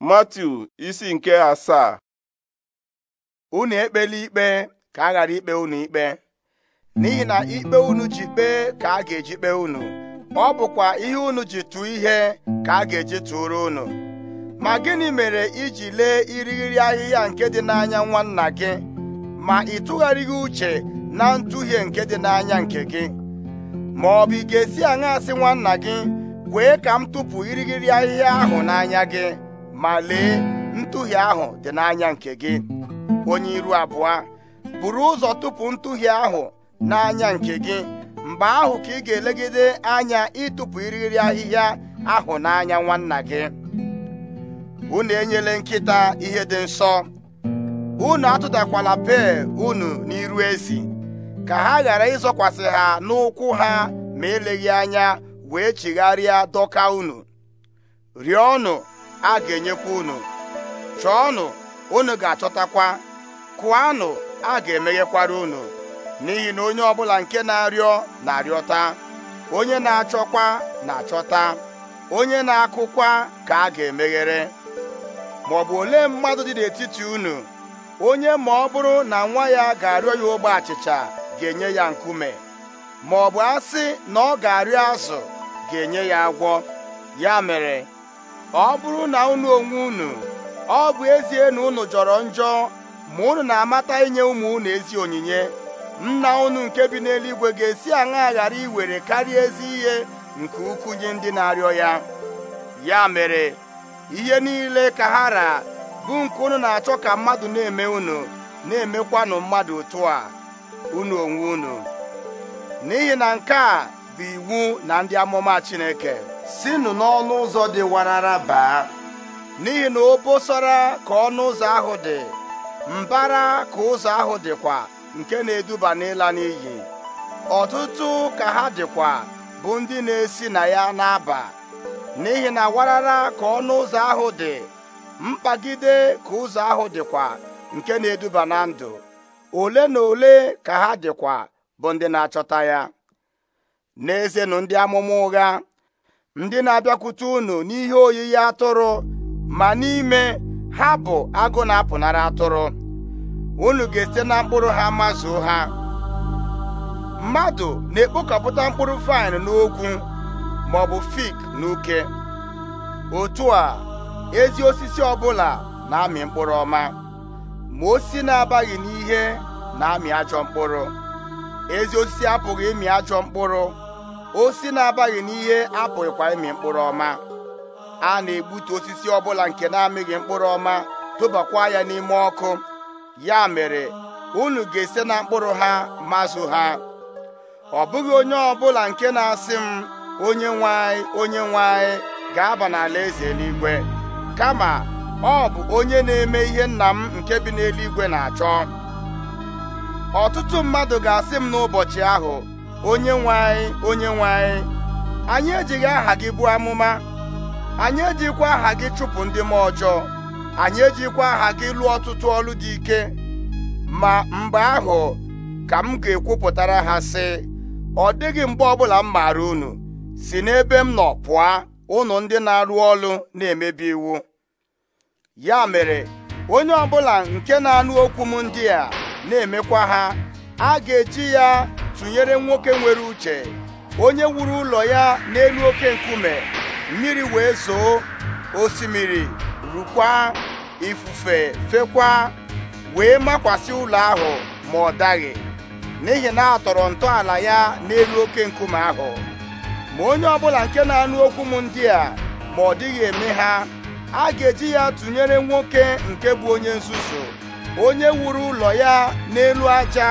Matiu isi nke asaa unu ekpela ikpe ka a ghara ikpe unu ikpe n'ihi na ikpe unu ji kpee ka a ga-eji kpee unu ọ bụkwa ihe unu ji tụọ ihe ka a ga-eji tụrụ unu ma gịnị mere iji lee irighiri ahịhịa nke dị n'anya nwanna gị ma ị tụgharịghị uche na ntụhie nke dị n'anya nke gị ma ọ bụ ị ga-esi aṅa asị nwanna gị kwee ka m tụpụ irighiri ahịhịa ahụ n'anya gị ma lee ntụhie ahụ dị n'anya nke gị onye iru abụọ buru ụzọ tupu ntụhie ahụ n'anya nke gị mgbe ahụ ka ị ga-elegide anya ịtụpụ iriri ahịhịa ahụ n'anya nwanna gị unu enyela nkịta ihe dị nsọ unu atụtakwala pee unu n'iru ezi ka ha ghara ịzọkwasị ha n'ụkwụ ha ma eleghị anya wee chigharịa dọka unu rịọnụ a ga-enyekwa unu chọọnụ unu ga-achọtakwa kụanụ a ga-emeghekwara unu n'ihi na onye ọ bụla nke na-arịọ na-arịọta onye na-achọkwa na-achọta onye na-akụkwa ka a ga-emeghere ma ọ bụ olee mmadụ dị n'etiti unu onye ma ọ bụrụ na nwa ya ga-arịọ ya ogbe achịcha ga-enye ya nkume ma ọ bụ asị na ọ ga-arịọ azụ ga-enye ya agwọ ya mere ọ bụrụ na unu onwe unu ọ bụ ezie na unu jọrọ njọ ma unu na-amata inye ụmụ unu ezi onyinye nna unu nke bi n'eluigwe ga-esi aṅa ghara iwere karịa ezi ihe nke ukwu nye ndị na-arịọ ya ya mere ihe niile ka ha ra bụ nke unu na-achọ ka mmadụ na-eme unu na-emekwanụ mmadụ otu a unu onwe unu n'ihi na nke a bụ iwu na ndị amụma Chineke sinụ n'ọnụ ụzọ dị warara baa n'ihi na obosara ka ọnụ ụzọ ahụ dị mbara ka ụzọ ahụ dịkwa nke na-eduba n'ịla n'iyi ọtụtụ ka ha dịkwa bụ ndị na-esi na ya na-aba n'ihi na warara ka ọnụ ụzọ ahụ dị mkpagide ka ụzọ ahụ dịkwa nke na-eduba na ndụ ole na ole ka ha dịkwa bụ ndị na-achọta ya n'ezenụ ndị amụma ụgha ndị na-abịakwute unu n'ihe oyiyi atụrụ ma n'ime ha bụ agụ na-apụnara atụrụ unu ga-esite na mkpụrụ ha mazuo ha mmadụ na-ekpokọpụta mkpụrụ vaịn n'ogwu ma ọ bụ fik n'uke otu a ezi osisi ọbụla na-amị mkpụrụ ọma ma osisi na-abaghị n'ihe na-amị ajọ mkpụrụ ezi osisi apụghị ịmị ajọ mkpụrụ osi na-abaghị n'ihe apụghịkwa ịmị mkpụrụ ọma a na-egbutu osisi ọbụla nke na-amịghị mkpụrụ ọma tụbakwa ya n'ime ọkụ ya mere unu ga-ese na mkpụrụ ha mazụ ha ọ bụghị onye ọbụla nke na-asị m onye nwanyị onye nwanyị ga-aba n'ala eze eluigwe kama ọ bụ onye na-eme ihe nna m nke bi n'eluigwe na-achọ ọtụtụ mmadụ ga-asị m n'ụbọchị ahụ onye nwe anyị onye nwe anyị anyị ejighị aha gị bụ amụma anyị ejikwa aha gị chụpụ ndị m ọjọọ anyị ejikwa aha gị lụọ ọtụtụ ọlụ dị ike ma mgbe ahụ ka m ga-ekwupụtara ha sị ọ dịghị mgbe ọbụla m maara unu si n'ebe m nọ pụọ unu ndị na-arụ olu na-emebi iwu ya mere onye ọbụla nke na-anụ okwu m ndị a na-emekwa ha a ga-eji ya tụnyere nwoke nwere uche onye wuru ụlọ ya n'elu oke nkume mmiri wee zoo osimiri rukwa ifufe fekwa wee makwasị ụlọ ahụ ma ọ daghị n'ihi na a tọrọ ntọala ya n'elu oke nkume ahụ ma onye ọbụla nke na-anụ okwu m ndị a ma ọ dịghị eme ha a ga-eji ya tụnyere nwoke nke bụ onye nzuzu onye wuru ụlọ ya n'elu aja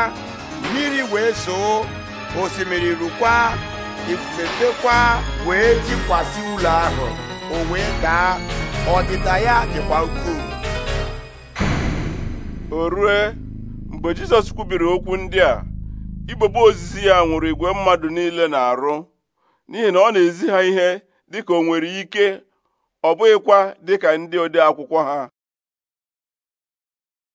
mmiri wee soo, osimiri rukwa ifufe wee jikwasị ụlọ ahụ o wee daa ọdịda ya dịkwa ukwuu o rue mgbe Jizọs kwubiri okwu ndị a igbogbo ozizi ya nwụrụ igwe mmadụ niile na-arụ n'ihi na ọ na-ezi ha ihe dịka o nwere ike ọ bụghịkwa dịka ndị ode akwụkwọ ha